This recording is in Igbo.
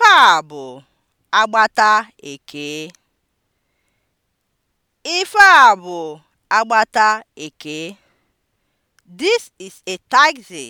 Ife a bụ agbata Ekee. Ife a bụ agbata Ekee. This is a taxi.